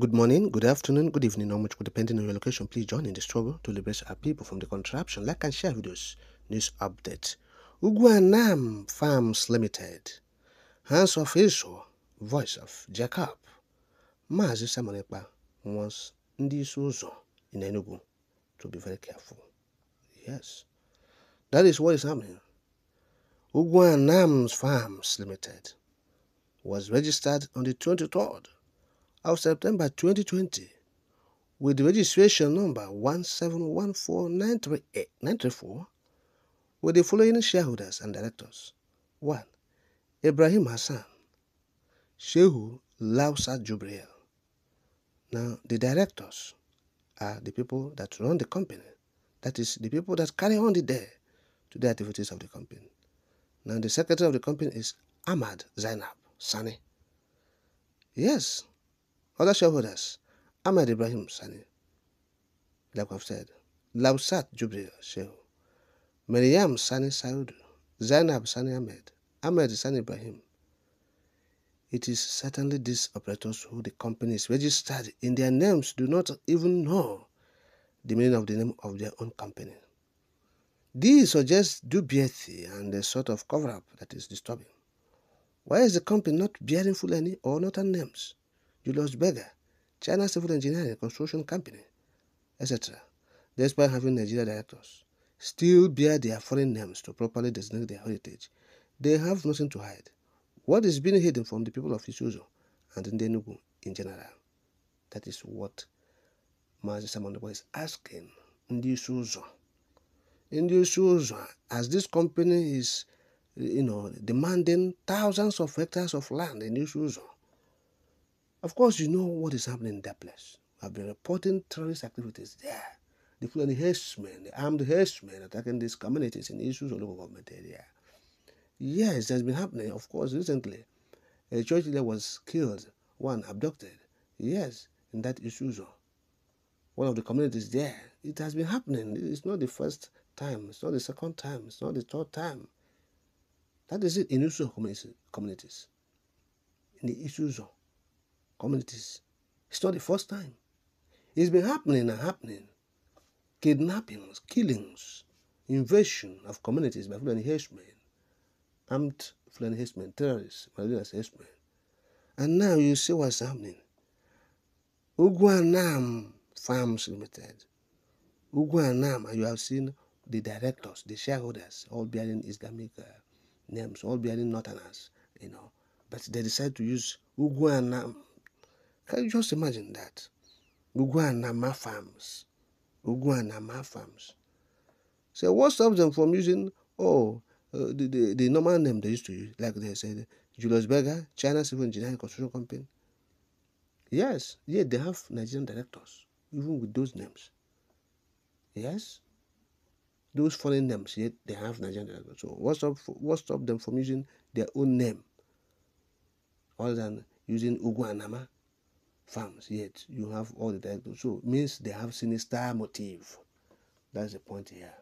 Good morning, good afternoon, good evening, or much depending on your location. Please join in the struggle to liberate our people from the contraption. Like and share videos. News update. Uguanam Farms Limited. Hands of Israel. Voice of Jacob. Mazi Samonekpa wants this also in Enugu to be very careful. Yes. That is what is happening. Uguanam Farms Limited was registered on the 23rd of September 2020 with registration number 1714934 with the following shareholders and directors. 1. Ibrahim Hassan Shehu Lausa Jubriel. Now, the directors are the people that run the company. That is, the people that carry on the day to the activities of the company. Now, the secretary of the company is Ahmad Zainab Sani. Yes, other shareholders, Ahmed Ibrahim Sani, like I've said, Labsat Jubril Shehu, Maryam Sani Saudu, Zainab Sani Ahmed, Ahmed Sani Ibrahim. It is certainly these operators who the companies registered in their names do not even know the meaning of the name of their own company. This suggests dubiety and a sort of cover-up that is disturbing. Why is the company not bearing full any or not names? Julius Berger, China civil engineering and construction company, etc., despite having Nigerian directors, still bear their foreign names to properly designate their heritage. They have nothing to hide. What is being hidden from the people of Isuzu and Ndenugu in general? That is what Mazi Samandobo is asking Ndi Isuzu. as this company is, you know, demanding thousands of hectares of land in Isuzu, of course, you know what is happening in that place. I've been reporting terrorist activities there. The including herdsmen, the armed herdsmen attacking these communities in issues of local government area. Yes, that's been happening. Of course, recently, a church leader was killed, one abducted. Yes, in that Isuzu, one of the communities there. It has been happening. It's not the first time. It's not the second time. It's not the third time. That is it in Isuzu communities. In the Isuzu communities. It's not the first time. It's been happening and happening. Kidnappings, killings, invasion of communities by Fulani herdsmen, armed Fulani herdsmen, terrorists, Malawians herdsmen. And now you see what's happening. Uguanam Farms Limited. Uguanam, you have seen the directors, the shareholders, all bearing Islamic uh, names, all bearing Northerners, you know. But they decide to use Uguanam can you just imagine that? Uguanama farms. Uguanama farms. So what stops them from using, oh, uh, the, the, the normal name they used to use, like they said, Julius Berger, China Civil Engineering Construction Company. Yes, yeah, they have Nigerian directors, even with those names. Yes, those foreign names, yet they have Nigerian directors. So what stops what stop them from using their own name, other than using Uguanama farms, yet you have all the directors So means they have sinister motive. That's the point here.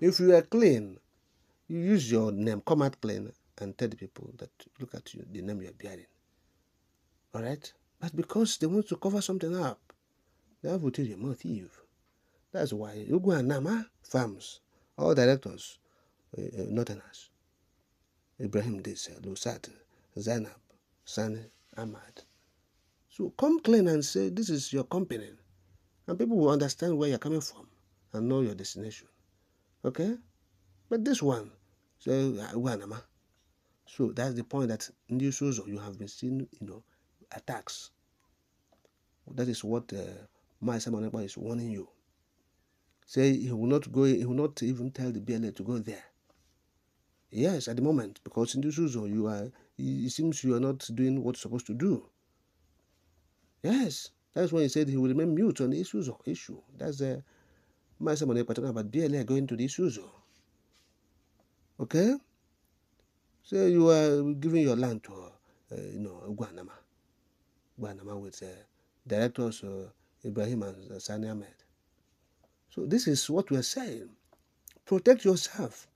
If you are clean, you use your name, come out clean, and tell the people that look at you, the name you are bearing. All right? But because they want to cover something up, they have to tell you, more That's why you go and Nama farms, all directors, uh, uh, northerners. Ibrahim Disa, Lusat, Zainab, Sani, Ahmad, so come clean and say, This is your company. And people will understand where you're coming from and know your destination. Okay? But this one, so, ah, so that's the point that this also you have been seeing, you know, attacks. That is what uh, my Simon is warning you. Say he will not go, he will not even tell the BLA to go there. Yes, at the moment, because in this you are, it seems you are not doing what you're supposed to do. Yes, that's when he said he will remain mute on the issues of issue. That's the Master Manuel talking about going to the issues. Okay? So you are giving your land to, uh, you know, Guanama. Guanama with uh, directors uh, Ibrahim and uh, Sani Ahmed. So this is what we are saying. Protect yourself.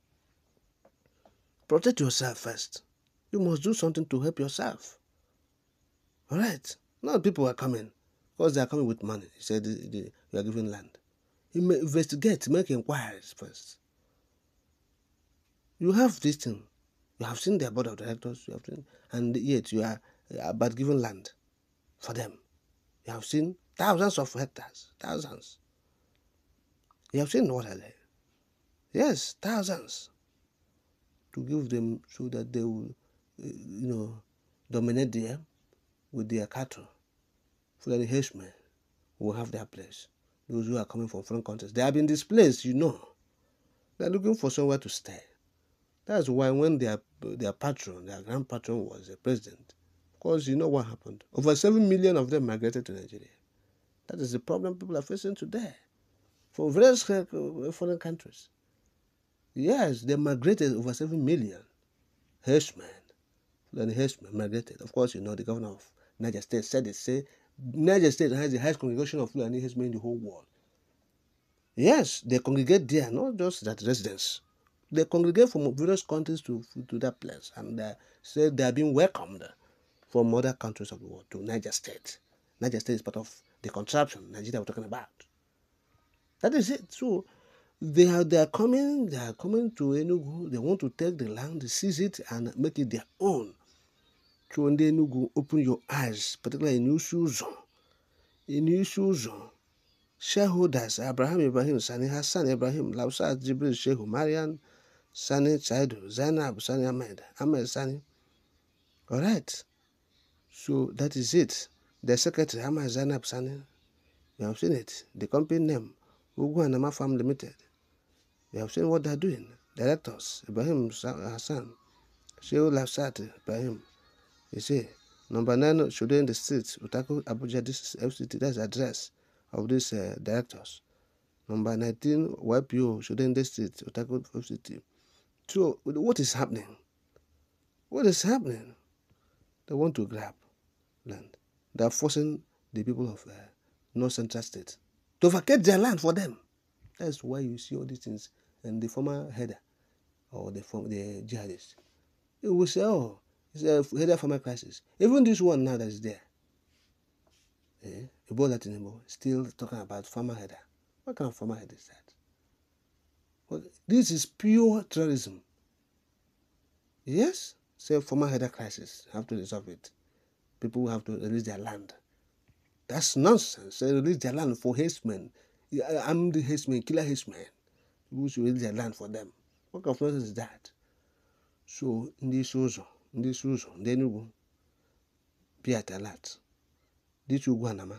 Protect yourself first. You must do something to help yourself. All right? Now people are coming because they are coming with money. He said, You are giving land. You investigate, make inquiries first. You have this thing. You have seen their board of directors, you have seen, and yet you are about giving land for them. You have seen thousands of hectares, thousands. You have seen what are they? Yes, thousands. To give them so that they will, eh, you know, dominate them with their cattle the henchmen will have their place. Those who are coming from foreign countries, they have been displaced, you know. They're looking for somewhere to stay. That's why when their their patron, their grand patron was the president, because you know what happened. Over seven million of them migrated to Nigeria. That is the problem people are facing today, from various uh, foreign countries. Yes, they migrated over seven million. Hirschman, then Hirschman migrated. Of course, you know the governor of Niger State said it. Say Niger State has the highest congregation of Fulani in the whole world. Yes, they congregate there, not just that residence. They congregate from various countries to, to that place, and they say they are being welcomed from other countries of the world to Niger State. Niger State is part of the contraption Nigeria we're talking about. That is it. So they are they are coming, they are coming to Enugu, they want to take the land, seize it, and make it their own. Chụọ ndị Enugu open your eyes, particularly in n'isi In n'isi Shareholders Abraham Ibrahim Sani Hassan Ibrahim Labsat Jibril Shehu Mariam Sani Chaidu Zainab Sani Ahmed Ahmed Sani. All right. So that is it. The secretary Ahmed Zainab Sani. We have seen it. The company name Uguanama Farm Limited. We have seen what they are doing. Directors Ibrahim Hassan Shehu Labsat Ibrahim. You see, number nine, Shodo in the street, Utako Abuja, this is FCT, that's the address of these uh, directors. Number 19, YPO, Shodo in the street, Utako FCT. So, what is happening? What is happening? They want to grab land. They are forcing the people of uh, North Central State to vacate their land for them. That's why you see all these things. And the former header or the, the jihadists, he will say, oh, it's a header farmer prices. Even this one now that is there, eh, a that anymore? still talking about farmer header. What kind of farmer header is that? Well, this is pure terrorism. Yes, say former header crisis, have to resolve it. People have to release their land. That's nonsense. They release their land for herdsmen. I'm uh, the herdsman, killer herdsman. People should release their land for them. What kind of nonsense is that? So, in this also, ndị isi ụzọ ndị Enugu Biatalat dịcha ugwu Anama